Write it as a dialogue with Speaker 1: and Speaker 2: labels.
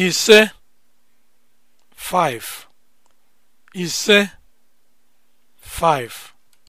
Speaker 1: ise five ise five